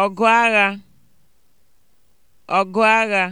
ọgụ agha ọgụ agha